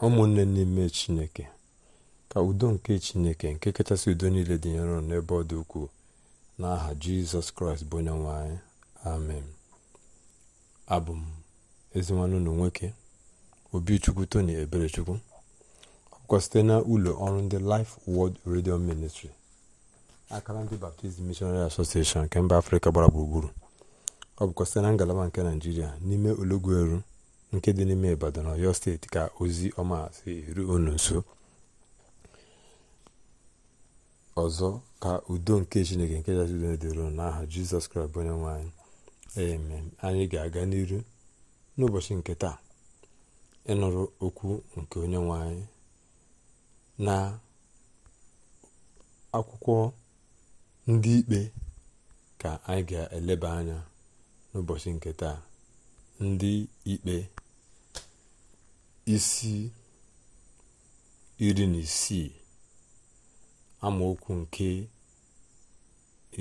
ụmụnne n'ime chineke ka udo nke chineke nke kachasị udo niile dị nro n'ebe ọ dị ukwuu n'aha jizọs kraịst bụ onye nwe anyị amen abụ m ezinwanụ chukwu nwoke obichukwu tony eberechukwu ọkwa site na ụlọ ọrụ ndị life world radio ministry akara ndị baptizim missionary association nke mba afrịka gbara gburugburu ọ bụkwa site na ngalaba nke naijiria n'ime ologweru nke dị n'ime Ibadan Ọyọ steeti ka ozi ọma si eru unu nso ọzọ ka udo nke chineke nke jazi n'aha jizọs kraịst onye nwanyị amen anyị ga-aga n'iru n'ụbọchị nke taa ịnụrụ okwu nke onye nwanyị na akwụkwọ ndị ikpe ka anyị ga-eleba anya n'ụbọchị nke taa ndị ikpe isi iri na isii amaokwu nke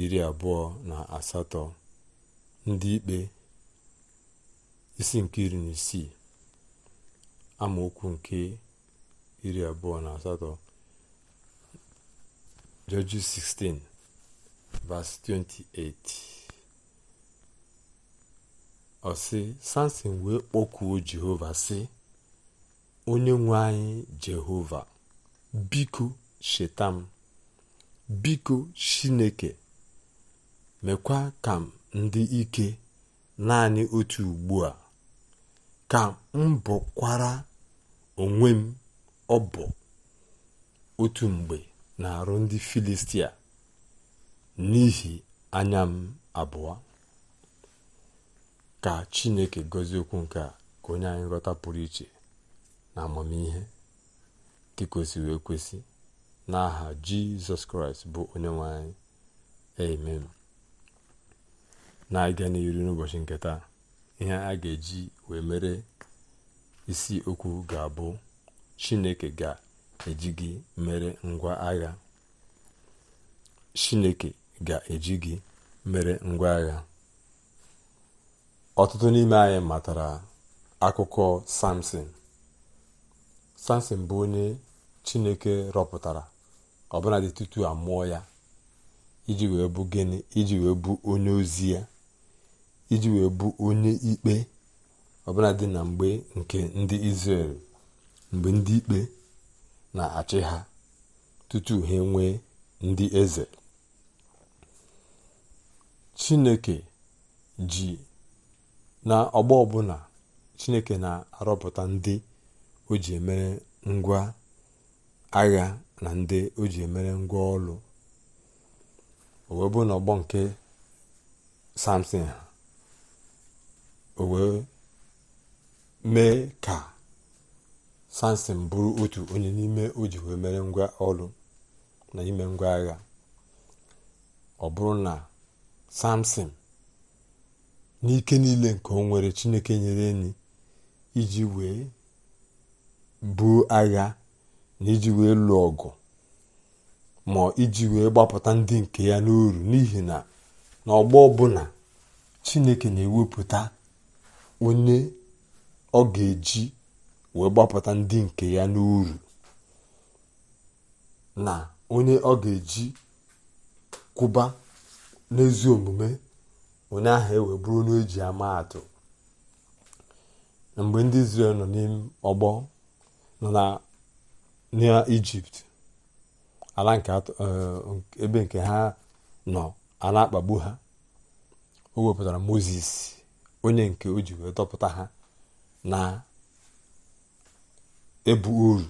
iri abụọ na asatọ ndị ikpe isi nke iri na isii amaokwu nke iri abụọ na asatọ Judges 16 verse 28 ọ sị Samson wee kpọkuo Jehova sị onye nwe anyị jehova biko cheta m biko chineke mekwa ka m ndị ike naanị otu ugbu a ka m bụkwara onwe m ọ bụ otu mgbe na-arụ ndị filistia n'ihi anya m abụọ ka chineke gọzie okwu nke a ka onye anyị ghọta pụrụ iche na amamihe nke kwesịrị ekwesị n'aha jizọs kraịst bụ onye nwanyị amen na-aga n'iru n'ụbọchị nketa ihe a ga-eji wee mere isi okwu ga-abụ chineke ga-eji mere ngwa agha chineke ga-eji gị mere ngwa agha ọtụtụ n'ime anyị matara akụkọ samson samson bụ onye chineke rọpụtara ọbụladị tutu a mụọ ya iji wee bụ gịnị iji wee bụ onye ozi ya iji wee bụ onye ikpe ọbụladị na mgbe nke ndị Izrel mgbe ndị ikpe na-achị ha tutu ha enwee ndị eze chineke ji na ọgbọ ọbụla chineke na-arọpụta ndị o ji emere ngwa agha na ndị o ji emere ngwa ọlụ o wee bụ n'ọgbọ nke samson ha o wee mee ka samson bụrụ otu onye n'ime o ji wee mere ngwa ọlụ na ime ngwa agha ọ bụrụ na samson n'ike niile nke o nwere chineke nyere enyi iji wee buo agha na iji wee lụọ ọgụ ma iji wee gbapụta ndị nke ya n'uru n'ihi na n'ọgbọ ọbụla chineke na-ewepụta onye ọ ga-eji wee gbapụta ndị nke ya n'uru na onye ọ ga-eji kwụba n'ezi omume onye ahụ ewe bụrụ onye eji ama atụ mgbe ndị Izrel nọ n'ime ọgbọ nọ na na ijipt ala nke eh, ebe nke ha nọ a akpagbu ha o wepụtara moses onye nke o ji wee dọpụta ha na ebu uru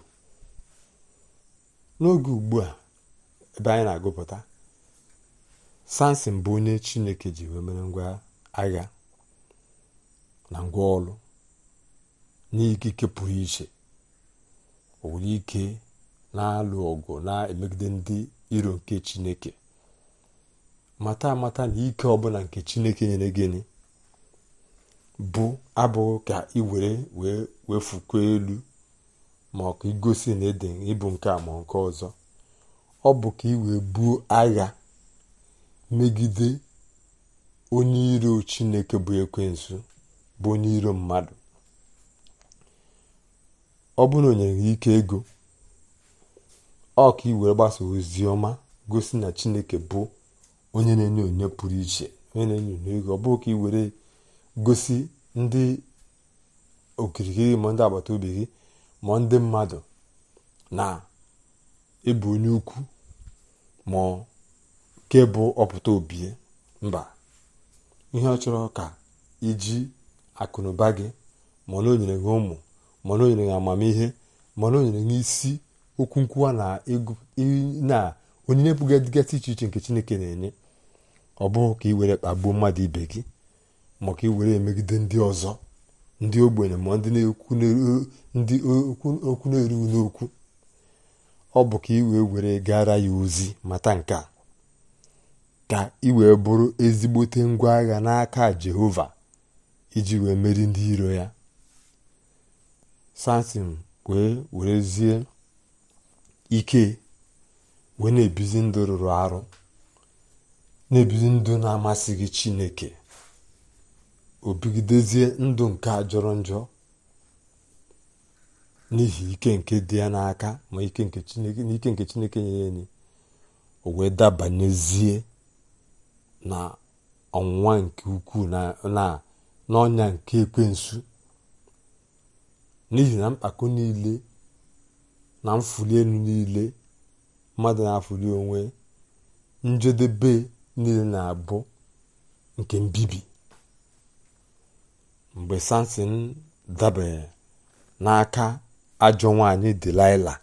n'oge ugbu a ebe anyị na-agụpụta samson bụ onye chineke ji wee mere ngwa agha na ngwa ọlụ n'ikike pụrụ iche onwere ike na-alụ ọgụ na-emegide ndị iro nke chineke mata amata na ike ọbụla nke chineke nyere gịnị bụ abụghị ka ị were wee wefukwa elu ma ọ ka igosi na ede ịbụ nke a ma nke ọzọ ọ bụ ka ị wee buo agha megide onye iro chineke bụ ekwensu bụ onye iro mmadụ ọ bụrụ na o nyere gị ike ego ọ ka ị were gbasa ozi ọma gosi na chineke bụ onye na-enye onye pụrụ iche onye na-enye onye ego ọ bụrụ ka iwere gosi ndị okirikiri ma ndị agbata obi gị ma ndị mmadụ na ịbụ onye ukwu ma ke bụ ọpụta obi mba ihe ọ chọrọ ka iji akụnụba gị ma na o nyere gị ụmụ mana o nyere amamihe mana o nyere n'isi isi okwu nkwuwa na na onyinye bụ dịgasị iche iche nke chineke na-enye ọ bụghị ka ị were kpagbuo mmadụ ibe gị ị were emegide ndị ọzọ ndị ogbenye ma ndị okwu na-erughị n'okwu ọ bụ ka ị wee were gara ya ozi mata nke a ka ị wee bụrụ ezigbote ngwa agha n'aka jehova iji wee meri ndị iro ya satin wee zie ike wee na-ebizi ndụ rụrụ arụ na-ebizi ndụ na-amasịghị chineke o bigidezie ndụ nke a jọrọ njọ n'ihi ike nke dị ya n'aka ma ike nke chineke nyere ni o wee dabanyezie na ọnwụnwa nke ukwuu na n'ọnya nke ekwensu n'ihi na mkpako niile na mfuli elu niile mmadụ na-afụli onwe njedebe niile na-abụ nke mbibi mgbe samson dabere n'aka ajọ nwanyị delaila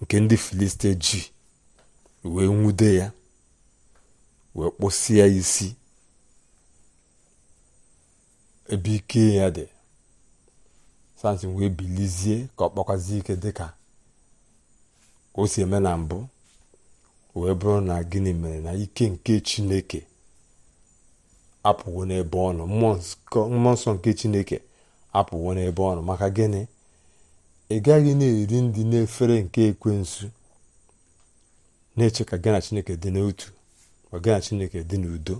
nke ndị filiste ji wee nwude ya wee kpụsịa isi ebe ike ya dị sansị wee bilizie ka ọ kpọkwazie ike dị ka o si eme na mbụ wee bụrụ na gịnị mere na ike nke chineke apụwo n'ebe ọ nọ mmụọ nsọ nke chineke apụwo n'ebe ọ nọ maka gịnị ị gaghị na-eri ndị na efere nke ekwensu na-eche ka gị chineke dị n'otu ma chineke dị n'udo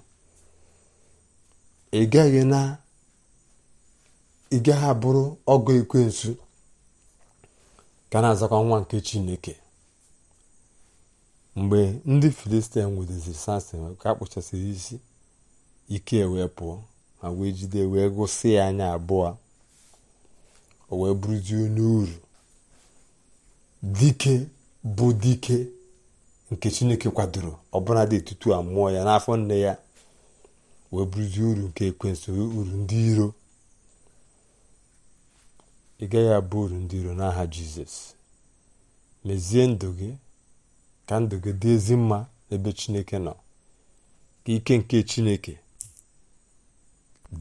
ị gaghị na ị gaghị abụrụ ọgọ ekwensu ka na-azakwa nwa nke chineke mgbe ndị filistin nwudeziri samson ka kpụchasịrị isi ike e wee pụọ ma wee jide wee gụsị ya anya abụọ o wee bụrụzie onye uru dike bụ dike nke chineke kwadoro ọbụla dị etutu a mụọ ya n'afọ nne ya wee bụrụzie uru nke ekwensu uru ndị iro ị gaghị abụ uru ndị iro n'aha jizọs mezie ndụ gị ka ndụ gị dị ezi mma n'ebe chineke nọ ka ike nke chineke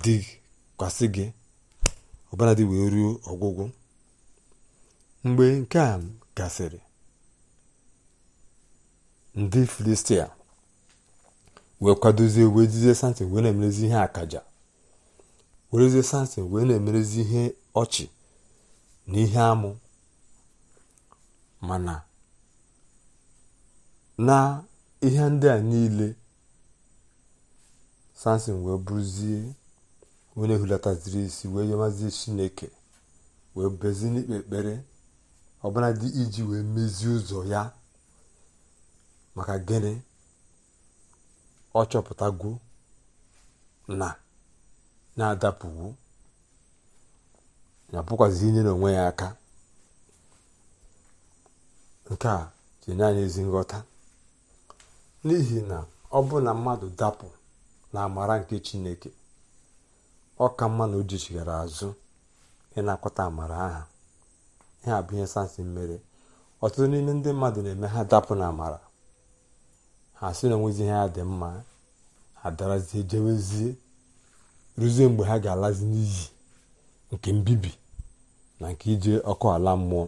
dị dịkwasị gị ọbara dị wee ruo ọgwụgwụ mgbe nke a gasịrị ndị filistia wee kwadozie wee jizie samson wee na-emerezi ihe akaja werezie samson wee na-emerezi ihe ọchị n'ihe amụ mana na ihe ndị a niile samson wee bụrụzie onye ziri isi wee yọmazie chineke wee bezi n'ikpe ekpere ọbụladị iji wee mezie ụzọ ya maka gịnị ọ chọpụtago na na-adapụwo na-apụkwazi inyere onwe ya aka nke a tinye anyị ezi nghọta n'ihi na ọ bụ na mmadụ dapụ na amara nke chineke ọ ka mma na o jichigara azụ ịnakọta amara aha ihe a bụ ihe sansị mmere ọtụtụ n'ime ndị mmadụ na-eme ha dapụ na amara ha sị na onwezi ihe ya dị mma ha darazie jewezie ruzie mgbe ha ga-alazi n'iyi nke mbibi na nke ije ọkụ ala mmụọ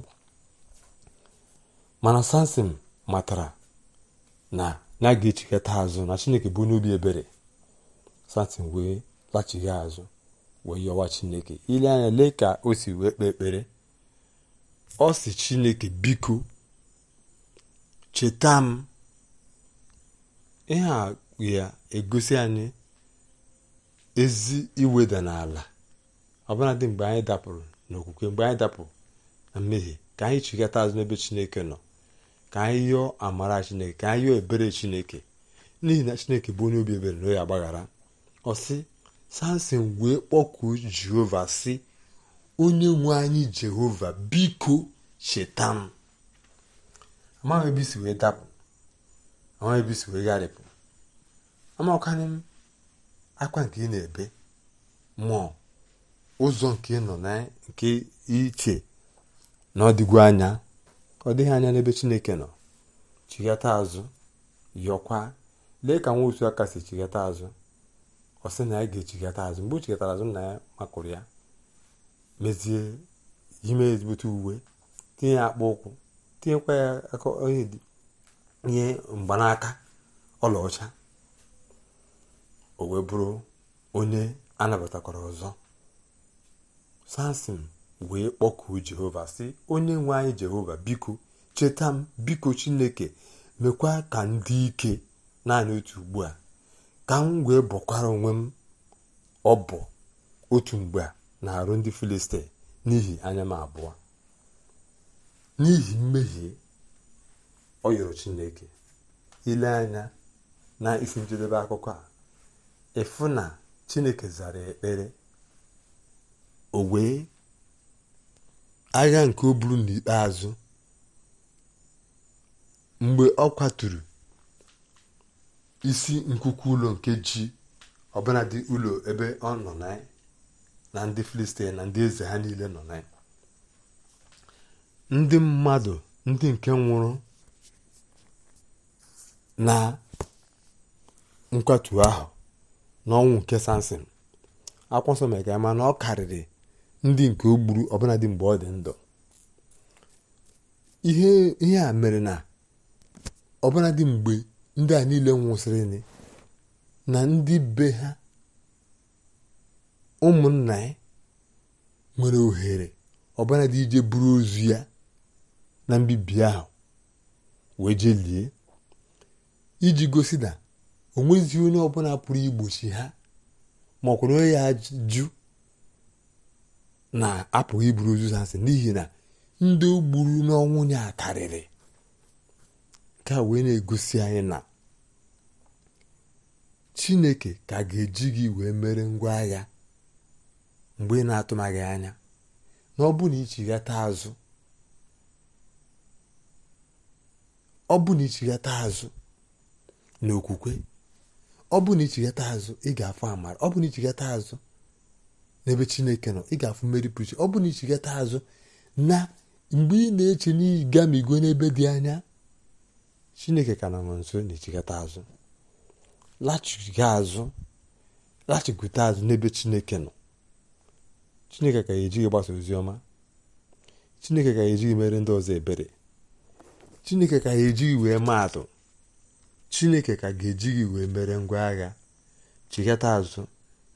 mana samson matara na ya ga-echikọta azụ na chineke bụ n'obi ebere samson wee lachighi azụ wee yọwa chineke ile anya lee ka o si wee kpee ekpere ọ si chineke biko cheta m ihe a ya egosi anyị ezi iweda n'ala ọbụladị mgbe anyị dapụrụ na mgbe anyị dapụ na mmehie ka anyị chigata azụ n'ebe chineke nọ ka anyị yọọ amara chineke ka anyị yọọ ebere chineke n'ihi na chineke bụ onye obi ebere na onye agbaghara ọsị samson wee kpọkuo jehova sị onye nwe anyị jehova biko cheta m amaghị ebe isi wee dapụ amaghị ebe isi wee gharịpụ m akwa nke ị na-ebe mmụọ ụzọ nke nọ na nke iche na ọ anya ọ dịghị anya n'ebe chineke nọ chighata azụ yọkwa lee ka nwa otu aka si chighata azụ ọ sị na ya ga-echighata azụ mgbe o chighatara azụ na ya makụrụ ya mezie ime ezigbote uwe tinye ya akpa ụkwụ tinyekwa ya onye nye mgbanaka ọlaọcha o wee bụrụ onye anabatakwara ọzọ samson wee kpọkuo jehova si onye nwe anyị jehova biko cheta m biko chineke mekwa ka ndị ike naanị otu ugbu a ka m wee bọkwara onwe m ọ bụ otu mgbe a na-arụ ndị filistin n'ihi anya m abụọ n'ihi mmehie ọ yọrọ chineke ile anya na isi njedebe akụkọ a ịfụ na chineke zara ekpere o wee agha nke o buru n'ikpeazụ mgbe ọ kwaturu isi nkuku ụlọ nke ji ọbụladị ụlọ ebe ọ nọ na ndị filistin na ndị eze ha niile nọ na ndị mmadụ ndị nke nwụrụ na nkwatu ahụ n'ọnwụ nke sansin akwụsọ mere ka na ọ karịrị ndị nke o gburu ọbụladị mgbe ọ dị ndụ ihe a mere na ọbụladị mgbe ndị a niile nwụsịrị na ndị be ha ụmụnna ya nwere ohere ọbụladị ije buru ozu ya na mbibi ahụ wee jee iji gosi na o nweghịzi onye ọbụla pụrụ igbochi ha ma ọ kwụrụ onye ya jụ na-apụghị iburu ozu n'ihi na ndị gburu n'ọnwụ ya karịrị ka wee na-egosi anyị na chineke ka ga-eji gị wee mere ngwa agha mgbe ị na-atụmaghị anya na ọ bụ na ichighata azụ ọ bụ na azụ n'okwukwe ọ bụ na ichighata azụ ị ga afọ amara ọ bụ na ichighata azụ n'ebe chineke nọ ị ga-afụ mmeri pụrụ ọ bụrụ na ichigata azụ na mgbe ị na-eche na n'igamigo n'ebe dị anya chineke ka na nọ nso na-echigata azụ lachiga azụ lachigote azụ n'ebe chineke nọ chineke ka ya ejighị gbasa ozi ọma chineke ka ya ejighị mere ndị ọzọ ebere chineke ka ya ejighị wee maatụ chineke ka ga-ejighị wee mere ngwa agha chigata azụ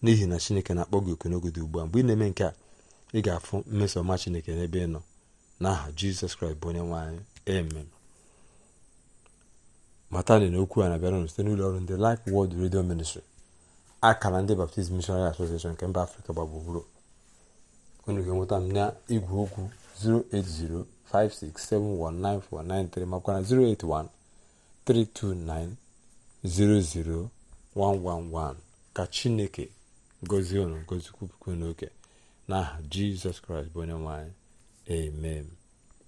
n'ihi na chineke na-akpọ gị oku n'oge dị ugbu a mgbe ị na-eme nke a ị ga-afụ mmeso ọma chineke n'ebe ị nọ n'aha jizọs kraịst bụ onye nwe eme amen matani na okwu a na-abịara site n'ụlọ ọrụ ndị Life wọld redio Ministry akara ndị Baptist Missionary Association nke mba Afrịka gbagburu onye ga-enweta m na igwe okwu 08056719493 makwa na 08132900111 ka Chineke gozie unu ngozi kwupụkwu n'oke n'aha jizọs kraịst bụ onye nwanyị. anyị amen